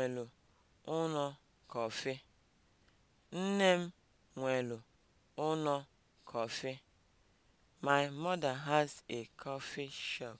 nwelu ụnọ kọfị. Nne m nwelu ụnọ kọfị. My mother has a coffee shop.